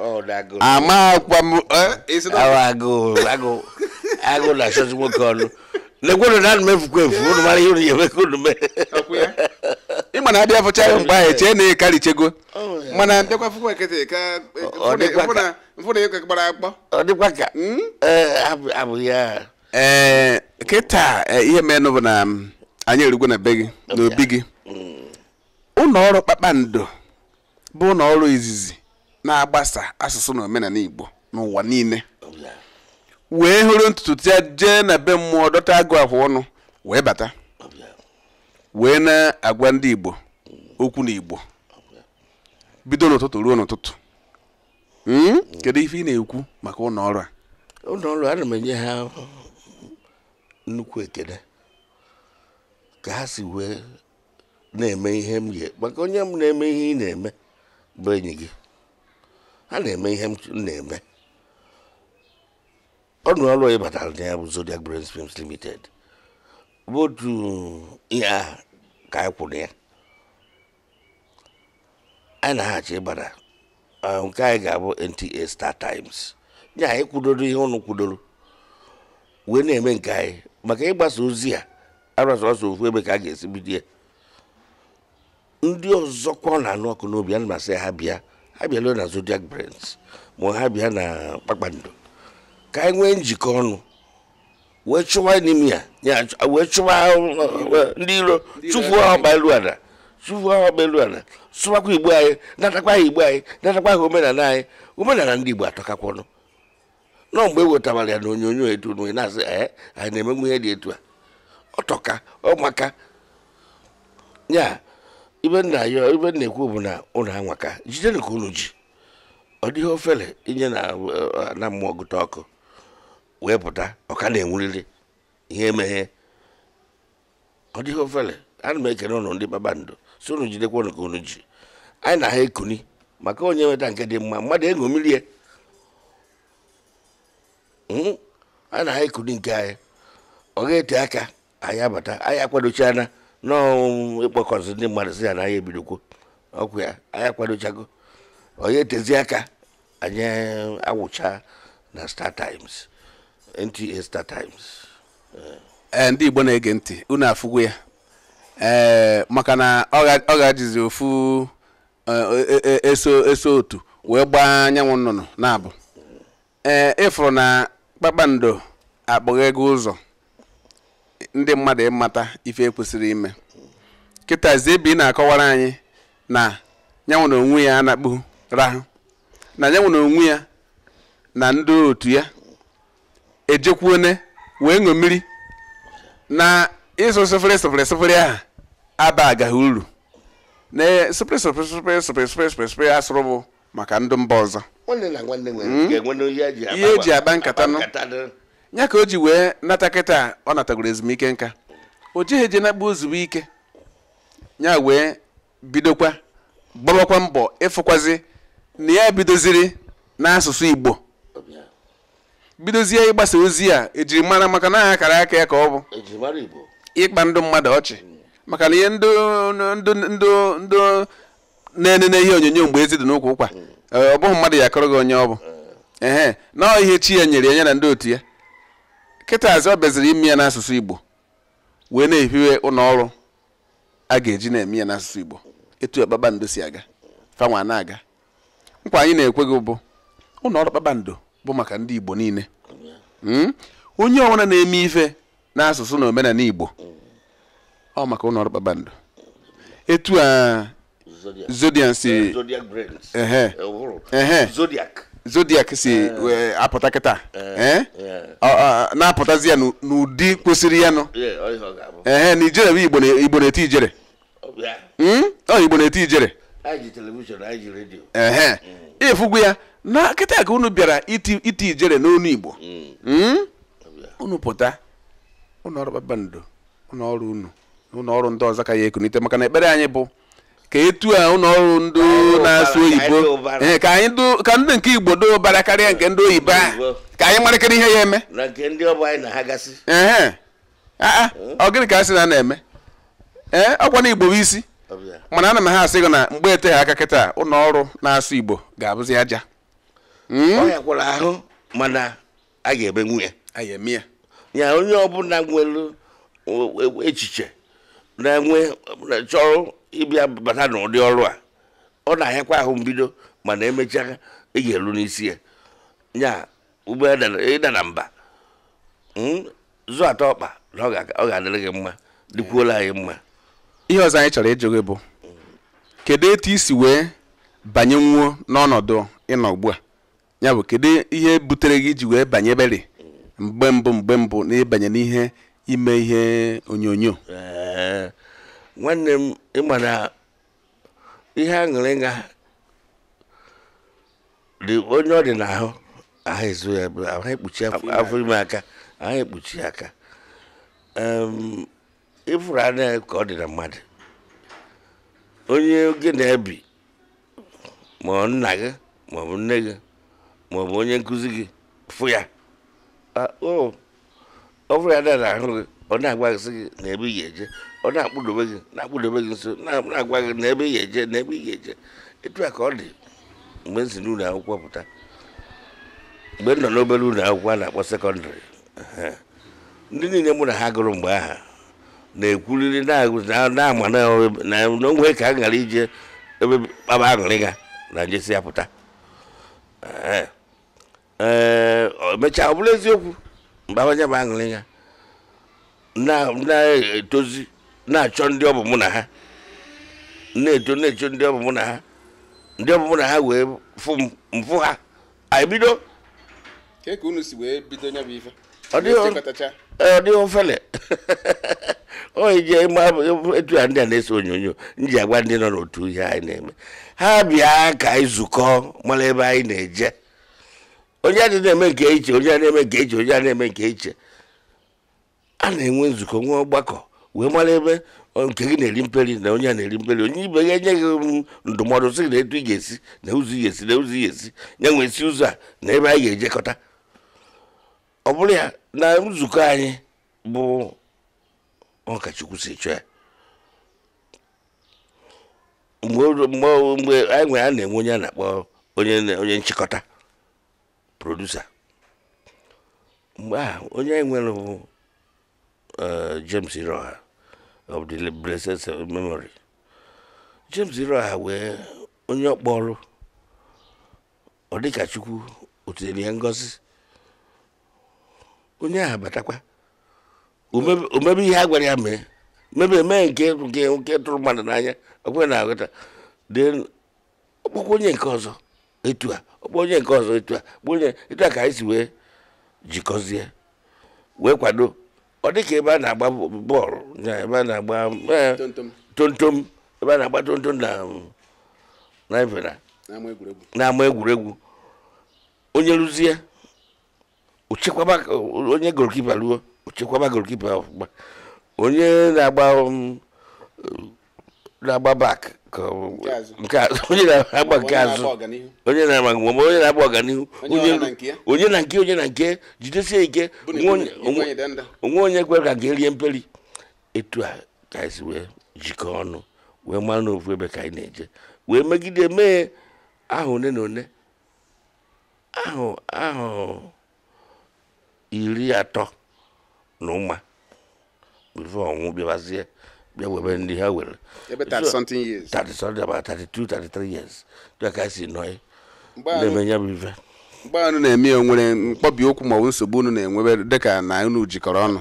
amakwa m agụ e, e na achọzi nwoke ọnụ lekwenụ na anụ mefukwa efu unu mara ihe unu ga-eme ka unu mee ịma na adịghị afọcha ya mgbe ahụ chee na ịkarịchego mana ọdịkwa ka e, Ọ akpọ. Hmm? abụghị ya ee kịta ihe meenụ bụ na anyị erugwo na be gị na n'obi gị hmm. ụlọ ọrụ kpakpando bụ na ọrụ izizi na-agbasa asụsụ na omenala igbo n'ụwa niile wee hụrụ ntutu ya jee na be mmụọ dọta agụ afụ ọnụ wee bata wee na-agwa ndị igbo okwu na igbo bido n'ụtụtụ ruo n'ụtụtụ hmm? kedu ife ị na-ekwu maka ụlọ a ụlọ ọrụ ana m enye ha nnukwu ekele ka ha si wee na-eme ihe m ga maka onye m na-eme ihe ị na-eme bụ enyi gị ha na-eme ihe m na-eme ọnụ ọrụ onye batara na ya bụ Zodiac Brains Films Limited bụ otu ihe a ka anyị kwụrụ ya anyị na-aghachi ịbara nke anyị ga-abụ NTA Star Times nye anyị kwudoro ihe ụnụ kwudoro wee na-eme nke anyị maka ịgbasa ozi a ọsọ ofu ebe ka a ga-esi bido ya ndị ọzọkwa ọ na-anụ ọkụ n'obi a na masị ha bịa ha bịala na zodiac brands ma ha bịa na kpakpando ka anyị nwee njikọ ọnụ wee chụwa enimia wee chụwa e, ndị iro chụfuo ha elu ala chụfuo ha elu ala sụwakwa igbo anyị natakwa ha igbo anyị natakwa ha omenala anyị omenala ndị igbo atọkakwa ọnụ nọ mgbe e wetawara ya na onyonyo etu na-asị anyị na-emenwu ihe dị etu a ọtọka ọmaka ya ibe nna ya ibe na-ekwu bụ na ụlọ anwaka jidenu ka unu ji ọ dịghị ofele inye eh, na mmụọ gụta ọkụ wee pụta ọka na-enwurịrị ihe emeghe ọ dịghị ofele na m ekene ụlọ ndị babandụ so unu jidekwa unu ka unu ji anyị na ha ekuni maka onye nweta nke dị mma mmadụ mmiri e ya hmm? anyị na ha ekuni nke anyị ọ ga-ete aka anyị abata anyị akwadochiana nọọ ịkpọkọzi ndị mmadụ si ya na anyị ebidokwo ọkwụ ya anyị akwadochago onye etezi aka anyị awụcha na Star Times NTA Star Times ndị Igbo na-ege ntị unu afụgwu ya ee maka na ọ gajizi ofu e, e, e, eso eso otu wee gbaa anyanwụ nnụnụ na-abụ ee ịfụrụ na kpakpando akpọghị ego ụzọ ndị mmadụ ịmata ife ekwesịrị ime kịta ebe ị na-akọwara anyị na ya nwere onwe ya anakpu rahụ na ya nwere onwe ya na ndị otu ya ejekwuone wee ṅụ mmiri na ịsụ sụfere sụfere sụfere ahụ aba agaghị uru na sụfere sụfere sụfere sụfere sụfere sụfere sụfere asụrụ bụ maka ndụ mba ọzọ hmm? ihe eji e agba nkata nụ nya ka o ji wee nata kịta ọ natagoro ezumike nka o jeghị eje nakpa ozugbo ike ya wee bidokwa gbabakwa mbọ ịfụkwazi na ya bidoziri n'asụsụ igbo bidozie ịgbasa ozi a ejiri mara maka na akara aka ya ka ọ bụ e ịkpa ndụ mmadụ ọchị maka na ihe ndụ ndụ na-enene ihe onyonyo mgbe ezi dị n'ụkwụ ụkwa ọ bụghị mmadụ ya akọrọ gị onye ọ bụ ehe na ihe chi ya nyere ya na ndị otu ya kịtazi ọ bịaziri ime ya n'asụsụ igbo wee na-ehiwe ụlọ a ga-eji na-eme ya n'asụsụ igbo etu ya kpakpando si aga fanwa na-aga nkwa anyị na ekweghị bụ ụlọ ọrụ kpakpando bụ maka ndị igbo niile hmm? onye ọbụla na-eme ife n'asụsụ na omenala igbo ọ maka ụlọ ọrụ kpakpando etu a zodiac si zodiac si eh. apụta kịta eh. eh? na-apụtazi ya n'ụdị kwesịrị ya nụ ee na ijere bụ igbo igbo na-eti ijere ọ hmm? igbo na-eti ijere ee hmm. ịfụgwu ya na kịta ka unu bịara iti ijere n'onu igbo hmm. unu pụta ụlọọrụ kpakpando ụlọọrụ unu na ụlọọrụ ndị ọzọ ka ya ekunite maka na ekpere anyị bụ ka etu a ụlọọrụ ndị na-asụ oyibo ka ndị nke igbo do ụbara karịa nke ndị oyibo a ka anyị marakịrị ihe ya eme ọ gịnị ka a sị na a na-eme ee ọkwa na igbo bụ isi mana ana m ha asị gị na mgbe eteghị aka kịta ọrụ na-asụ igbo ga-abụzi aja hmm? ahụ mana a ga-eme nwunye ya onye ọbụla nwere echiche na-enwe chọrọ ịbịa bata n'ụdị ọrụ a ọ na-ahịakwa ahụ mbido mana emechaa eji elu n'isi ya nya ụgbọ na mba hmm? zụ atọ ọkpa na ọ ga-adịrị gị mma dịkwuola anyị mma ihe ọzọ anyị chọrọ ịjụ gị bụ kedu etu isi wee banye nwuo n'ọnọdụ ịnọ ugbu a ya bụ kedu ihe butere gị iji wee banye beri mgbe mbụ mgbe mbụ na ịbanye n'ihe ime ihe onyonyo nwanne m ịma na ihe aṅụrịga dị onye ọ dị n'ahụ ahụ ezu ya ahụ ekpuchi afọ ime aka ahụ ekpuchi aka ịfụrụ anya ka ọ dị na mmadụ onye gị na-ebi ma ọ nna gị ma ọ bụ nne gị ma ọ bụ onye nkụzi gị fụ ya ah, o oh, ọ bụrụ ya na na-ahụ gị ọ na-agwaghịsị gị na ebe ị ga-eje ọ na-akpụdobe gị na-akpụdobe gị nso na-agwa gị na ebe ị ga-eje na ebe ị ga-eje etu a ka ọ dị mgbe m si n'ụlọ akwụkwọ pụta mgbe m nọ n'obere ụlọ akwụkwọ a na-akpọ sekọndịrị ndị niile mụ na ha gụrụ mgbe aha na-ekwuriri na-ama na onwe ka a ghara ije ebe kpaba aṅụrị ga na njesi ya pụta ee emechaa ọ bụrụ eziokwu mgbe mkpabanya bụ aṅụrị ya na-etozi na-achọ ndị ọ bụ mụ na ha na-eto na-echo ndị ọ bụ mụ na ha ndị ọ bụ mụ na ha wee mfụ ha anyị bido e ọ dịghị e, ofele oyi ji etu a ndị a na-ese onyonyo nji ji agwa ndị nọ n'otu ihe anyị na-eme ha bịa ka anyị zukọ mara ebe anyị na-eje onye adị na-eme nke iche onye a na-eme nke iche onye a na-eme nke iche a na-enwe nzukọ nwe ọgbakọ wee mara ebe nke gị na-eri mperi na onye a na-eri mperi onye ibe ya enye gị um, ndụmọdụ sị na etu ị ga-esi na ụzọ ị ga-esi na ụzọ ị ga-esi ya nwee ụzọ a na ebe anyị ga-ejekọta ọ bụrụ ya na nzukọ anyị bụ ọkachukwu si chọọ ya mgbe anyị nwere a na-enwe onye a na-akpọ onye nchịkọta produsa mgbe a onye anyị nwere bụ e, James Iroha of the blessed memory James Iroha wee onye ọkpọrụ ọ dịka Chukwu otinyere ya ngozi onye ahụ batakwa omebe ihe a gwara ya mee mebe mee nke nke tụrụ mmadụ n'anya ọ kwere na aghọta dee ọkpọkwa onye nke ọzọ etu a onye nke ọzọ etu a onye etu a ka anyị si wee jikọzie wee kwado ọ dị ka ebe a na-agba bọọlụ na ebe a na-agba e, tontom ebe a na-agba tontom na ifena na-ama egwuregwu onye rụzie ochekwaba onye golikipa ruo ochekwaba golikipa ọfụma onye na-agba um, na-agba bak onye na-agba nke azụ onye na-agba ma onye na-agba ọganihu onye na nke onye na nke jidesie ike onwe onye kwere ka ga-erie mperi etu a ka esi wee jikọọ ọnụ wee mara ofu ebe ka anyị na-eje wee megide mee ahụ one na one ahụ ahụ iri atọ na ụma bifo ọnwụ bịabazie bịa webe ndị ha were ebe 30 something years ka si nọ na ya bụ ife mgbe anụ na-eme ya nwere mkpọbi okwu maọbụ nsogbu unu na-enwebe dịka na unu jikọrọ ọnụ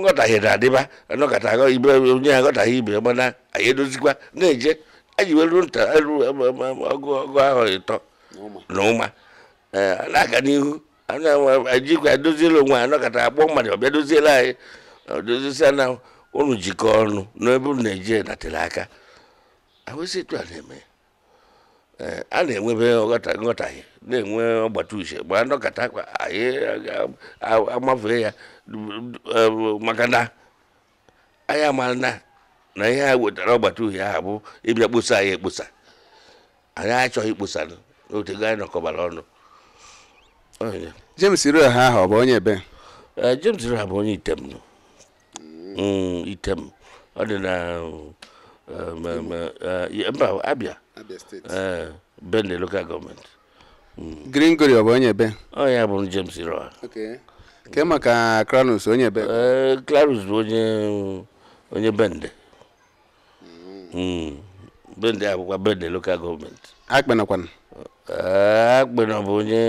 nghọtahie na-adịba anọkọta ibe onye ha aghọtaghị ibe mana anyị edozikwa na-eje anyị weru nta ọgụ ọgụ ahụ ịtọ na ụma eh, na-aga n'ihu ajikwa edoziela onwe anọkọta agbọ mmadụ ọbịa doziela anyị dozie na unu jikọ ọnụ n'ebe unu naijiria datara aka awụsị etu a na-eme e, a na-enwebe nghọtahie na-enwe ọgbata uche gbaa ndọkọta akpa anyị amafee ya e, maka na anyị amara na na ihe ha wetara ọgbata uhie ahụ bụ ịbịa kposa anyị ekposa anyị achọghị ikposa n'otego anyị nọkọbara ọnụ James Iroha ahụ ọ bụ onye ebe e, James Iroha bụ onye Itemnu Mm, item ọ dị na eh, eh, mba abịa eh, bende local government mm. green gori ọ bụ onye ebe ọ oh, ya bụ james roa ke maka kranus onye ebe kranus bụ onye onye bende mm. bende akwụkwọ bende local government akpenakwana akpena bụ onye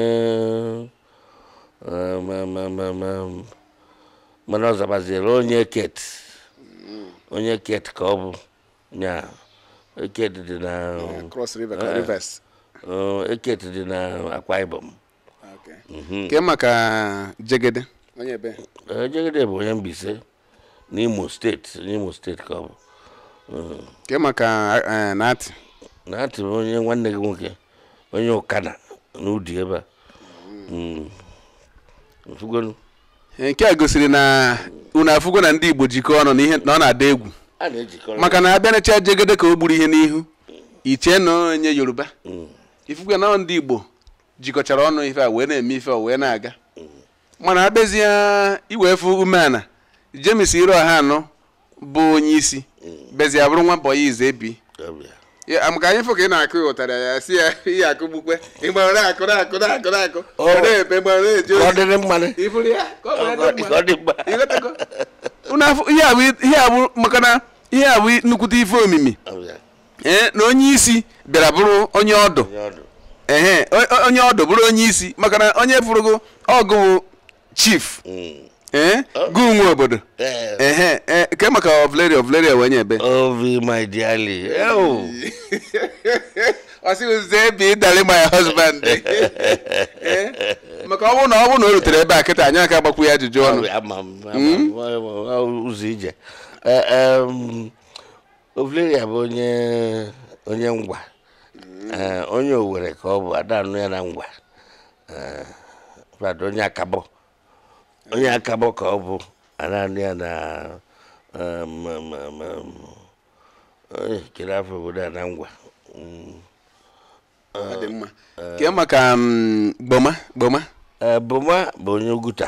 mana ọzabaziri onye ket onye ket ka ọ bụ ya eket dị na eket eh, oh, dị na akwa ibom nke mhm. maka jegede eh, jegede bụ onye mbise n'Imo steeti n'Imo steeti ka ọ bụ nke mm. maka nati eh, nati bụ onye nwanne gị nwoke onye ụkana n'udi ebe a mm. nke a gosiri na unu afụgo na ndị Igbo jikọọ ọnụ na ọ na-ada egwu maka na abịanacha jegede ka o gburu ihe n'ihu iche na onye Yoruba mm. ifukwe na ndị Igbo jikọchara ọnụ ife a wee na-eme ife a wee na-aga mm. mana abịazie iwefu umeala James Iroha anọ bụ onye isi mm. bezie bụrụ nwa bọya izebi maka anyị ka ị na-akụ ụtara ya si ya ihe akụ gbukpe ịgbara na-akụ na-akụ na-akụ na-akụ eji ozi maka na ihe abụ nnukwute ife omimi ee na onye isi bịara bụrụ onye ọdụ ehe onye ọdụ bụrụ onye isi maka na onye fụrụgo ọgụ chief mm. Eh? Eh? gụ nwe obodo eh. ke maka ovleria ovleria wenye ebe ovi my dearly ọsịwụzie ebe ịdali my husband maka ọ bụrụ na ọ bụrụ na o rutere ebe a kịta anyị aka agbakwu ya ajụjụ ọnụ hmm? ụzọ ije ovleria bụ onye onye ngwa onye owere ka ọ bụ Ada anụ ya na ngwa onye akabọ onye akabọ ka ọ bụ ananị ya na chere um, um, um, afọ obodo a na ngwa ọ dị mma maka gboma gboma eh, boma bụ onye oguta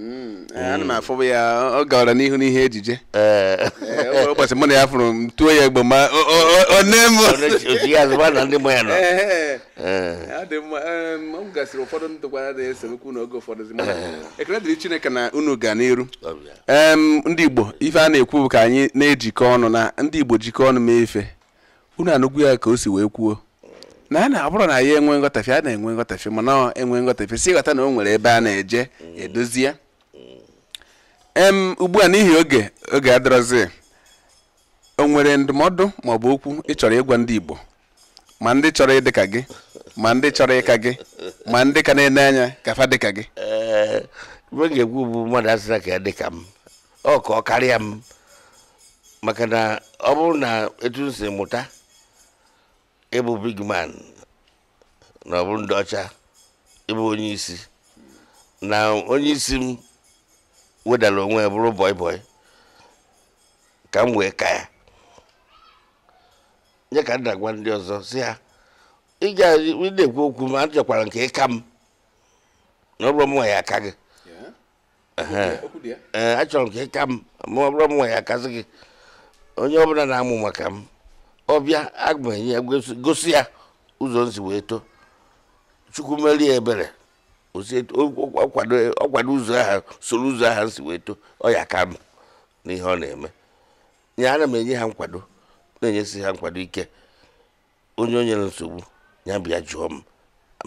Mm. Eh, ana afọ afụ ya ọ gawara n'ihu n'ihe ejije eh. Eh, ụbọchị mụ na ya fụrụ m tuo ya egbo ma one m ọ gasịrị ụfọdụ ndụkwara na-eso okwu n'oge ụfọdụ ekele dịrị chineke na unu ga n'iru ndị igbo ife a na-ekwu bụ ka anyị na-ejikọ ọnụ na ndị igbo jikọ ọnụ mee ife unu anụgwu ya ka o si wee kwuo na a na-abụrụ na ya enwe nghọtafe a na-enwe nghọtafe mana enwe nghọtafe si ghọta na o nwere ebe a na-eje edozi ya em ugbu a n'ihi oge oge adịrọzi o nwere ndụmọdụ bụ okwu ịchọrọ ịgwa ndị Igbo ma ndị chọrọ ịdị ka gị ma ndị chọrọ ịka gị ma ndị ka na-ene anya kafa dị ka gị ibe ga-ekwu bụ mmadụ asịra ka ya dị ka m ọ ka ọ karịa m maka na ọ bụrụ na etu m si mụta ịbụ big man na ọ bụrụ ndị ọcha ịbụ onye isi na onye isi m wedara onwe ya bụrụ bọị bọị ka m wee ka ya nye ka agwa ndị ọzọ si ha ị na-ekwu okwu ma a nke ịka m na ọ bụrụ ya aka gị achọrọ nke ka ịka m ma ọ bụrụ nwa ya akasị gị onye ọbụla na-amụ maka m ọbịa aga ya gosi ya ụzọ nsi wee too chukwu merie ebere ọkwado ụzọ ha soro ụzọ ha si wee too ọ ya ka n'ihe ọ na-eme nya ana m enye ha nkwado na-enyesi ha nkwado ike onye onye nsogbu ya bịa jụọ m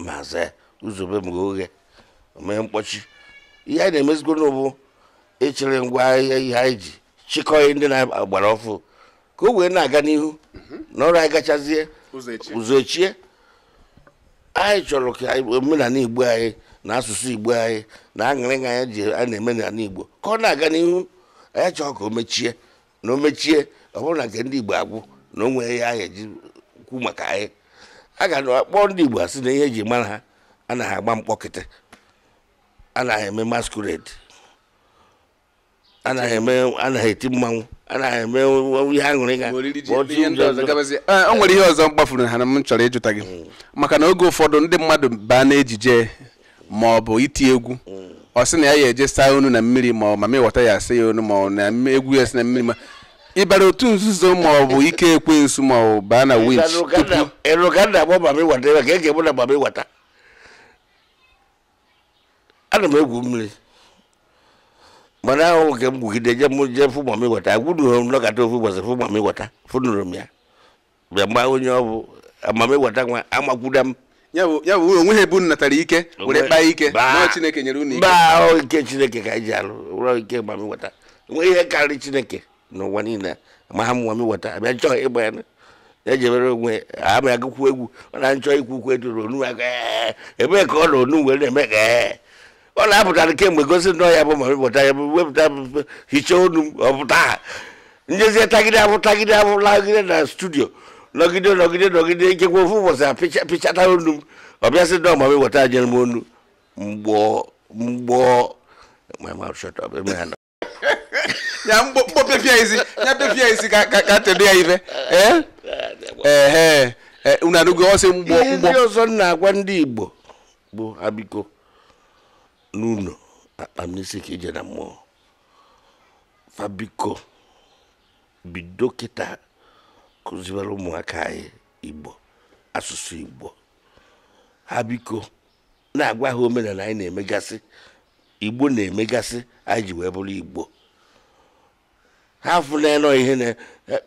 ma zaa ya ụzọbe m oghe mee mkpọchi ihe anyị na-emezigoro n'ụbụ echere ngwa ahịa ihe anyị ji chịkọghị ndị na-agbara ọfụ ka o wee na-aga n'ihu na ọrụ anyị gachazie ụzọ echie anyị chọrọ ka omenala igbo anyị na asụsụ igbo anyị na aṅụrịga anya ji a na-eme n'ala igbo ka ọ na-aga n'ihu anyị chọọ ka o mechie na o mechie ọ bụrụ na nke ndị igbo agwụ na o nwere ya aha eji kwu maka anyị a ga akpọ ndị igbo asị na ihe eji mara ha a na agba mkpọkịtị na eme masquerade anaghị eti mmanwụ anaghị eme ihe aṅụrịga e, o nwere ihe ọzọ m kpafuru ha na m chọrọ ịjụta gị hmm. maka na oge ụfọdụ ndị mmadụ baa n'ejije ma ọ bụ iti egwu ọ sị na ya ya eje saa onu na mmiri ma ọ ma mewọta ya asa ya onu ma ọ na egwu ya si na mmiri ma ịbara otu nzuzo ma ọ bụ ike ekwensu ma ọ baa na winch tupu eruganda bụ ma mewata ya ka ege mụ na ma mewata ana m egwu mmiri mana ahụ nke m gwugide je m je fụ ma mewata agwụnughị m nọkata ofu ụbọchị fụ ma fụ fụnụrụ m ya bịa mgbe onye ọ bụ amamewata nwa amakwuda m ya bụ ya bụ onwe ha ebu natara ike were kpaa ike na chineke nyere unu ike baa ike chineke ka anyị ji alụ ụrọ ike ma m weta enweghị ihe karịrị chineke n'ụwa niile ma ha mụwa m weta abịa chọọ ịgba ya ejebere onwe ama agụkwu egwu ọ na nchọ ikwu ukwu eduru onu aka ebe ka ọ na onu were na-eme ka ọ na-apụtara kemgbe gosi nnọọ ya bụ ma wepụta ya bụ wepụta hichaa onu m ọpụta ha njezie tagide abụ tagide abụ lagide na studio nọgide nọgide nọgide ikekwe ofu ụbọchị a pịcha pịchata onu m ọbịa sị dọọ ma m eweta ajere m onu mgbọ mgbọ ya mgbo pepia isi ya pepia isi ka ka tedo ya ife ee eh? ee eh, eh, unu anụgo ọsị mgbọ mgbọ ndị ọzọ na-agwa ndị igbo bụ abiko n'ụlọ akpa m n'isi ka ije na fabiko bido kịta kụziwere ụmụaka anyị igbo asụsụ igbo ha biko na-agwa ha omenala anyị na-emegasị igbo na-emegasị anyị ji wee bụrụ igbo ha afụnalọ ihe na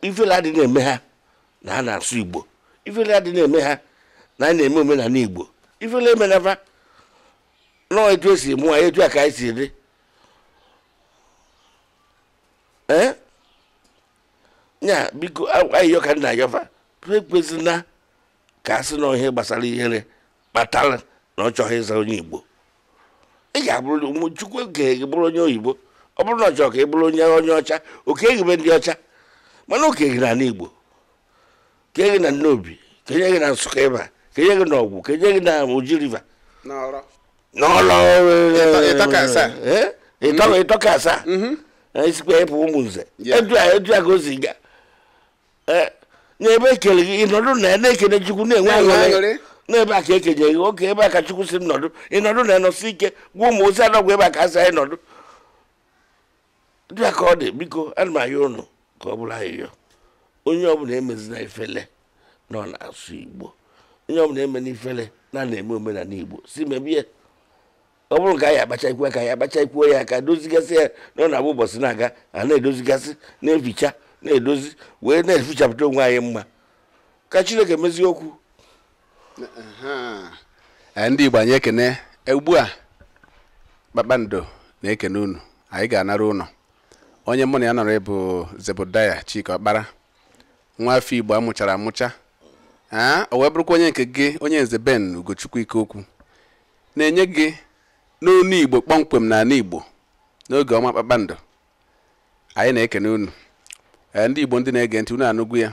ifela dị na-eme ha na ha na-asụ igbo ifela dị na-eme ha na anyị na-eme omenala igbo ifela emenaba nọọ etu esi mụọ etu a ka anyị si dị nya biko ayo ka nna ayọfa ekwezina ka a sị na ihe gbasara ihere kpatara na ọ chọghị ịza onye igbo ị ga-abụrụ chukwu oke gị bụrụ onye oyibo ọ bụrụ na ọ chọrọ ka ị bụrụ onye onye ọcha oke ehibe ndị ọcha mana oke gị na igbo kenye gị na nnobi kenye gị na nsụka ịba kenye gị na ọgwụ kenye gị na oji riva n'ọlọ e, e, e, ịtọka asaa isikwa mhm. ịpụ ụmụ nze edu a ka o si gaa Eh, n'ebe ekele gị ịnọdụ na ya na-ekele chukwu na-enwe aṅụrị n'ebe a ka ekenye gị oke ebe a ka chukwu si m nọdụ ịnọdụ na ịnọsi ike gwa ụmụ ozi anọgwụ ebe a ka asị anyị nọdụ dịa ka ọ dị biko ana m ahịa ụnụ ka ọ bụrụ ahịhịa onye ọbụla na ifele na ọ na-asụ igbo onye ọbụla na ifele na na-eme omenala igbo si mebie ọ bụrụ ka anyị ya ka anyị ikwu ya ka dozigasị ya na ọ na-abụ ụbọchị na-aga a na-edozigasị na-eficha na-edozi wee na-efichapụta onwe anyị mma ka chineke mezie okwu eh, ndị igbo anyị ekene ugbu a kpakpando na-ekene unu anyị ga-anara ụlọ onye mụ na ya nọrọ bụ zebudaya Chike ọkpara nwa afọ igbo amụchara amụcha aa ah, o wee bụrụkwa onye nke gị onye nze ben ugochukwu ike okwu na-enye gị n'onu igbo kpọmkwem na ala igbo n'oge ọma kpakpando anyị na-ekene unu ndị igbo ndị na-ege ntị unu anụgwu ya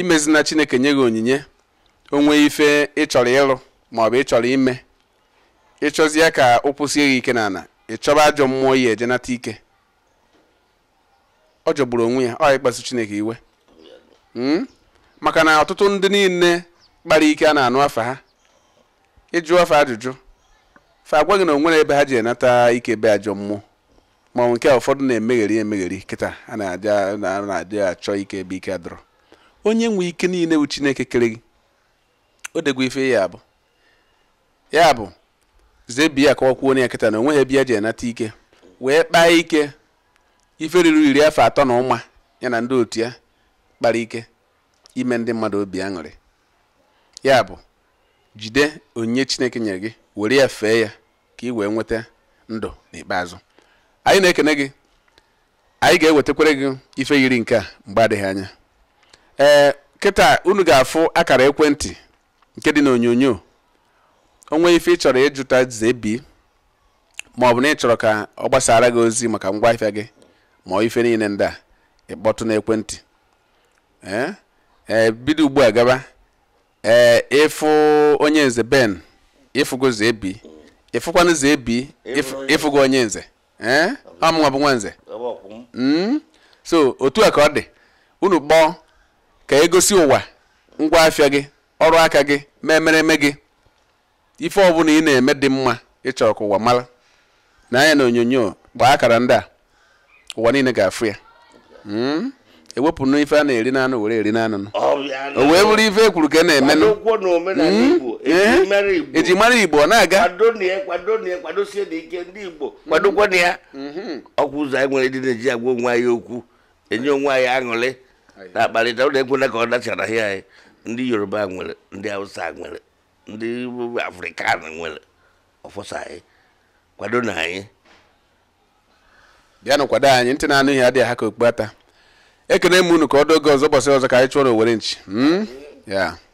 imezina chineke nye gị onyinye onwe ife ịchọrọ ịrụ maọbụ ịchọrọ ime ịchọzie ka ụkwụ sie gị ike n'ala ịchọba ajọ mmụọ ya ejenata ike ọ jọgburu onwe ya ọ ịkpasu chineke iwe hmm? maka na ọtụtụ ndị niile kpara ike a na-anụ afa ha ịjụ afa ajụjụ fa agwa gị na onwere ebe ha ji enata ike be ajọ mmụọ manwụ nke a ụfọdụ na-emegheri emegheri kịta a na na-adị achọ ike ebe ike adọrọ onye nwe ike niile bụ chineke kere gị o degwa ife ya bụ ya bụ zebiya kọwakwuo ya kịta na onweghị ebe ya ji enata ike wee kpaa ike ife ruru iri afọ atọ na ụma ya na ndị otu ya kpara ike ime ndị mmadụ obi aṅụrị ya bụ jide onyinye chineke nyere gị were ya fee ya ka ị wee nweta ndụ n'ikpeazụ anyị na-ekene gị anyị ga-ewetakwere gị ife yiri nke a mgbe adịghị anya ee kịta unu ga-afụ akara ekwentị nke dị n'onyonyo onwe ife ị chọrọ ịjụta zebi ma ọ bụ na ị chọrọ ka ọ gbasara gị ozi maka ngwa ahịa gị ma ọ ife niile ndị a ịkpọtụ n'ekwentị ee bido ugbu a gaba ee ịfụ onye nze ben ịfụgo zebi ịfụkwanụ zebi ịfụgo onye nze ọmụma eh? bụ nwanze hmm? so otu a ka ọ dị unu kpọọ ka egosi ụwa ngwa afịa gị ọrụ aka gị ma eme gị ife ọbụla ị na-eme dị mma ịchọrọ ka ụwa mara na anya na onyonyo gbaa akara ndị a ụwa niile ga-afụ ya hmm? ewepụ na ife a na-eri n'anụ were eri n'anụ o wee bụrụ ife ekwuru ka e na-emenụ eji hmm? eh? mara igbo ọ na-aga kwadokwana ya ọkwụ ụzọ anyị nwere ndị na-eji agwa onwe anyị okwu enye onwe anyị aṅụrị na-akparịta ụlọ ekwela ka ọ dachara ahịa anyị ndị yoruba nwere ndị hausa nwere ndị afrịkan nwere ọfọsa anyị kwado na anyị bịanụ kwado anyị ntị na anụ ihe adịghị ha ka okpu ekene m unu ka ọdụ oge ọzọ gbasara ọzọ ka anyị chụọ na nchi hmm? ya